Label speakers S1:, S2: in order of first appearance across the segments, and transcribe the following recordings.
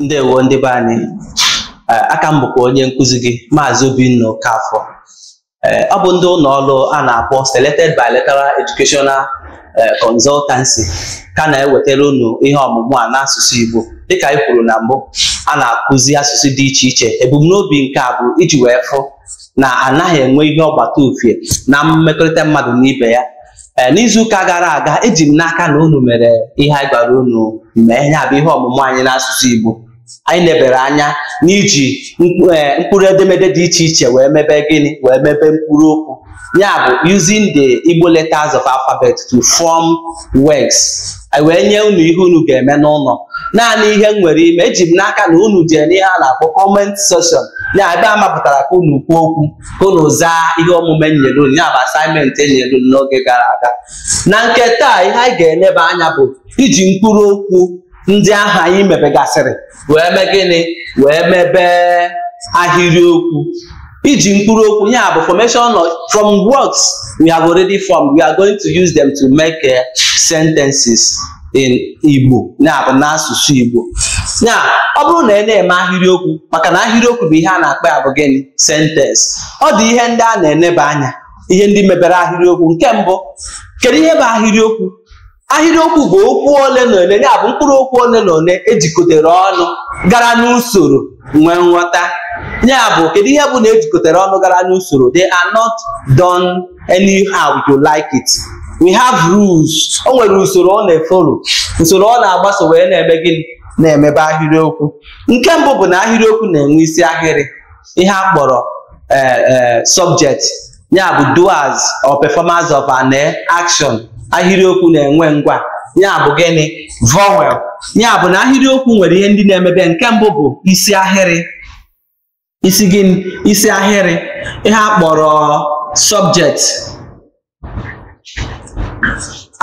S1: ndewo ndị be anyị e, aka m bụkwa onye nkụzi gị maazị Obinna Okafọ e, ọ bụ ndị ụlọ ọrụ a na-akpọ Selected Bilateral Educational e, Consultancy ka na-ewetara unu ihe ọmụmụ a n'asụsụ Igbo dịka anyị kwuru na mbụ a na-akụzi asụsụ dị iche iche ebumnobi nke a bụ iji wee fụ na anaghị enwe ihe ọgbata ofie na mmekọrịta mmadụ n'ibe ibe ya n'izuụka gara aga eji m n'aka na unu mere ihe anyị gwara unu mee ya bụ ihe ọmụmụ anyị n'asụsụ Igbo anyị nebere anya n'iji eh, mkpụrụ edemede dị iche iche wee mebe gịnị wee mebe mkpụrụ okwu ya bụ using the Igbo letters of alphabet to form words wee nye unu ihe unu ga-eme n'ụlọ naanị ihe m nwere ime eji m n'aka na unu jee n'ihe a na-akpọ comment section ya ebe a mapụtara ka unu kwuo okwu ka unu zaa ihe omume nyere unu ya bụ asaịmentị enyere unu n'oge gara aga na nke taa ihe anyị ga-eneba anya bụ iji mkpụrụ okwu ndị ahụ anyị mebegasịrị wee mee gịnị wee mebe ahịrịokwu iji mkpụrụ okwu ya bụ formation from words we have already formed we are going to use them to make eh, sentences in Igbo ya bụ n'asụsụ Igbo ya ọ bụrụ na ị e na-eme ahịrịokwu maka na ahịrịokwu bụ ihe a na-akpa ya bụ gịnị sentence ọ dị ihe ndị a na-eneba anya ihe ndị mebere ahịrịokwu nke mbụ kedu ihe bụ ahịrịokwu ahịrịokwu bụ okwu ole na ole ya bụ mkpụrụ okwu ole na ole ejikọtara ọnụ gara n'usoro nwee nghọta ya bụ kedu ihe bụ na ejikọtara ọnụ gara n'usoro they are not done anyhow you like it we have rules o nwere usoro ọ na-efolo usoro ọ na-agbaso wee na-eme gịnị na-emebe ahịrịokwu nke mbụ bụ na ahịrịokwu na-enwe isi ahịrị ihe a kpọrọ eh, eh, subject ya bụ doers or performance of an action ahịrịokwu na-enwe ngwa ya bụ gịnị vowel ya bụ na ahịrịokwu nwere ihe ndị na-emebe nke mbụ bụ isi ahịrị isi gịnị isi ahịrị ihe a kpọrọ subject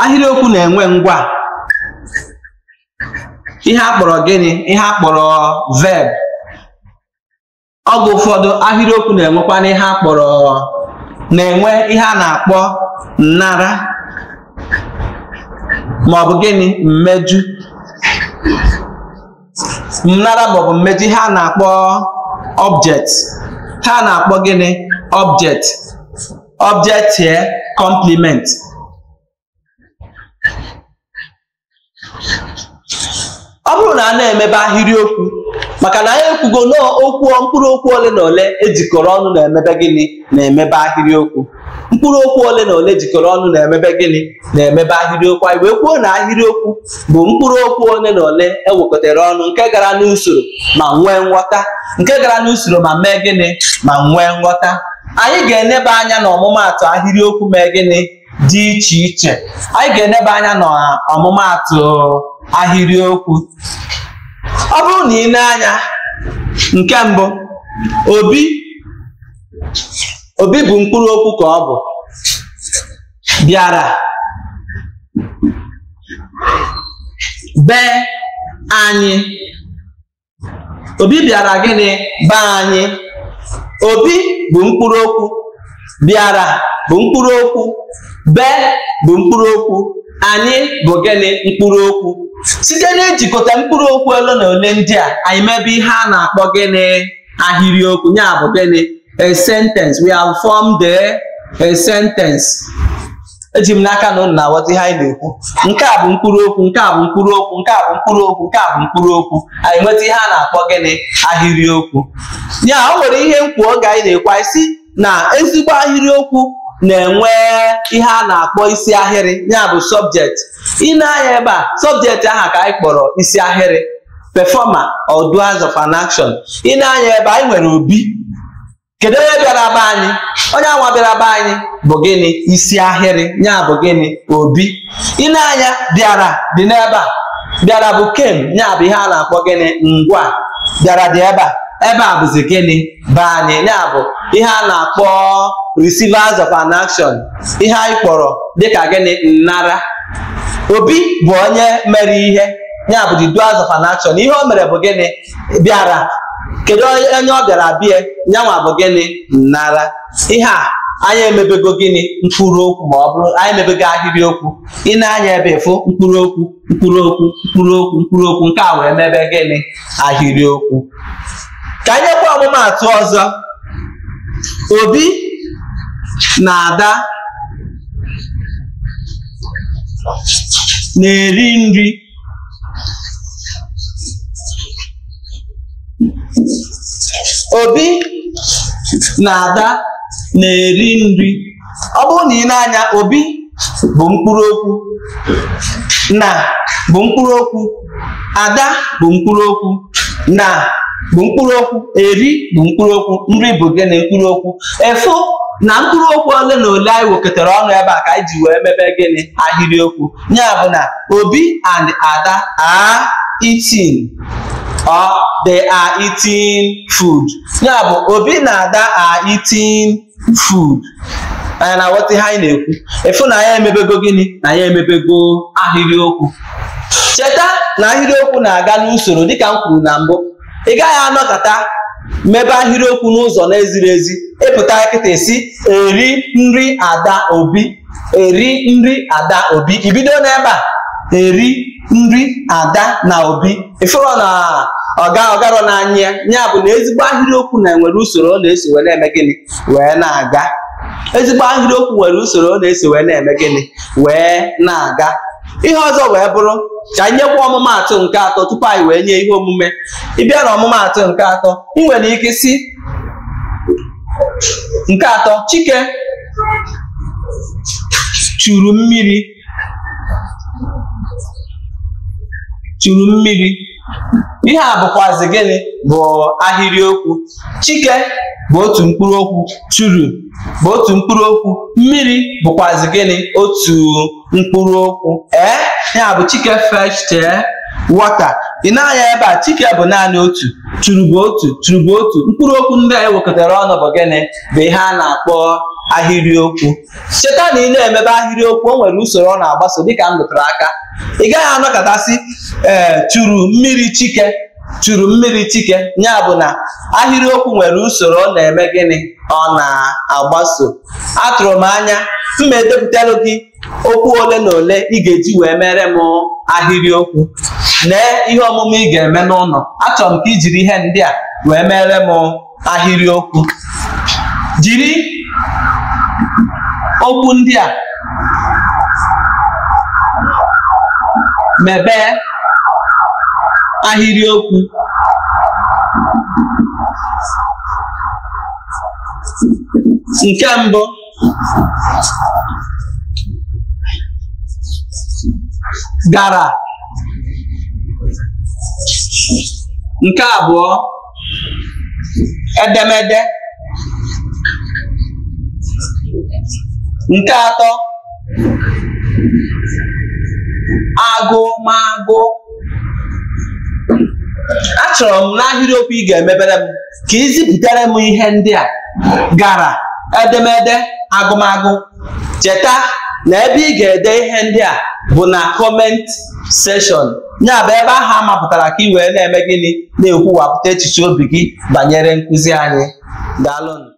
S1: ahịrịokwu na-enwe ngwa ihe a kpọrọ gịnị ihe a kpọrọ verb oge ụfọdụ ahịrịokwu na-enwekwana ihe a na-enwe ihe a na-akpọ nnara ma ọ bụ gịnị mmejụ nnara maọbụ mmeju ha na-akpọ ọbjet ha na-akpọ gịnị ọbjet object here ọ bụrụ na a na-emebe ahịrịokwu maka na anyị ekwugo n'okwu mkpụrụ okwu ole na ole ejikọrọ ọnụ na-emebe gịnị na-emebe ahịrịokwu mkpụrụ okwu ole na ole jikọrọ ọnụ na-emebe gịnị na-emebe ahịrịokwu anyị wee kwuo na ahịrịokwu bụ mkpụrụ okwu ole na ole ewekọtara ọnụ nke gara n'usoro ma nwee nghọta nke gara n'usoro ma mee gịnị ma nwee nghọta anyị ga-eneba anya na ọmụmaatụ ahịrịokwu mee gịnị dị iche iche anyị ga-eneba anya na ahịrịokwu ọ bụrụ na ị nee anya nke mbụ obi obi bụ mkpụrụ okwu ka ọ bụ bịara be anyị obi bịara gịnị be anyị obi bụ mkpụrụ okwu bịara bụ mkpụrụ okwu be bụ mkpụrụ okwu anyị bụ gịnị mkpụrụ okwu site n'ijikọta mkpụrụ okwu ole na ole ndị a anyị mebe ihe a na-akpọ gịnị ahịrịokwu ya bụ gịnị a sentence we have formed a, a sentence eji m n'aka na na-aghọta ihe anyị na-ekwu nke a bụ mkpụrụ okwu nke a bụ mkpụrụ okwu nke a bụ mkpụrụ okwu nke a bụ mkpụrụ okwu anyị nweta ihe a na-akpọ gịnị ahịrịokwu ya o nwere ihe nkwuo oge anyị na-ekwu anyị si na ezigbo ahịrịokwu na-enwe ihe a na-akpọ isi ahịrị ya bụ subject ị na-anya ebe a subject aha ka anyị kpọrọ isi ahịrị performer or doers of an action ị na-anya ebe anyị nwere obi kedu onye bịara be anyị onye anwa bịara be anyị bụ gịnị isi ahịrị ya bụ gịnị obi ịna-anya bịara dị n'ebe a bịara bụ kem ya bụ ihe a na-akpọ gịnị ngwa bịara dị ebe a ebe a bụzi gịnị be anyị ya bụ ihe a na-akpọ receivers of an action ihe anyị kpọrọ dịka gịnị nnara obi bụ onye mere ihe ya bụ the doers of an action ihe o mere bụ gịnị bịara kedu onye ọ bịara bịa nyanwa bụ gịnị nara ihe a anyị emebego gịnị mkpụrụ okwu ma ọ bụrụ anyị emebego ahịrị okwu ị na-anya ebe ịfụ mkpụrụ okwu mkpụrụ okwu mkpụrụ okwu mkpụrụ okwu nke a wee mebe gịnị ahịrị ka anyị nyekwa ọmụmatụ ọzọ obi na ada na-eri nri obi na ada na-eri nri ọ bụrụ na ị na-anya obi bụ mkpụrụ okwu na bụ mkpụrụ okwu ada bụ mkpụrụ okwu na bụ mkpụrụ okwu eri bụ mkpụrụ okwu nri bụ gị na mkpụrụ okwu Efu na mkpụrụ okwu ole na ole anyị wekọtara ọnụ ebe a ka anyị ji wee mebe gịnị ahịrịokwu ya bụ na obi and ada are itin. or they are eating food ya bụ obi na ada are eating food anyị na-aghọta ihe anyị na-ekwu efu na ya emebego gịnị na ya emebego ahịrịokwu cheta na ahịrịokwu na-aga n'usoro dịka m kwuru na mbụ ị gaghị anọkọta mebe ahịrịokwu n'ụzọ na-eziri ezi ịpụta nkịta esi eri nri ada obi eri nri ada obi ibido n'ebe a eri nri ada na obi ifuru na ọga ọgarọ n'anya ya bụ na ezigbo ahịrịokwu na-enwere usoro ọ na-eso wee na-eme gịnị wee na-aga ezigbo ahịrịokwu nwere usoro ọ na-eso wee na-eme gịnị wee na-aga ihe ọzọ wee bụrụ ka anyị nyekwa ọmụmatụ nke atọ tupu anyị wee nye ihe omume ịbịa na ọmụmaatụ nke atọ m nwere ike si nke atọ chike churu mmiri churu mmiri ihe a bụkwazi gịnị bụ ahịrịokwu chike bụ otu mkpụrụ okwu churu bụ otu mkpụrụ okwu mmiri bụkwazị gịnị otu mkpụrụ okwu ee ya bụ chike feshte wọta ị naghị ebe a chike bụ naanị otu churu bụ otu churu bụ otu mkpụrụ okwu ndị anyị wekọtara ọnụ bụ gịnị bụ ihe a na-akpọ ahịrịokwu cheta na ị na-emebe ahịrịokwu o nwere usoro ọ na-agbaso dịka m lụtara aka ị gaghị anọkọtasị ee churu mmiri chike churu mmiri chike ya bụ na ahịrịokwu nwere usoro ọ na-eme gịnị ọ na-agbaso atụrụ m anya mma edepụtalụ gị okwu ole na ole ị ga-eji wee mere m ahịrịokwu lee ihe ọmụmụ ị ga-eme n'ụlọ achọrọ m ka ijiri jiri ihe ndị a wee mere m ahịrịokwu jiri okwu ndị a mebee ahịrịokwu nke mbụ gara nke abụọ edemede nke atọ agụmagụ achọrọ m n'ahịrịokwu ị ga-emebere m ka ị m ihe ndị a gara edemede agụmagụ cheta na ebe ị ga-ede ihe ndị a bụ na kọment seshọn ya bụ ebe ahụ a mapụtara ka ị wee na-eme gịnị na-ekwuwapụta echiche obi gị banyere nkụzi anyị daalụnụ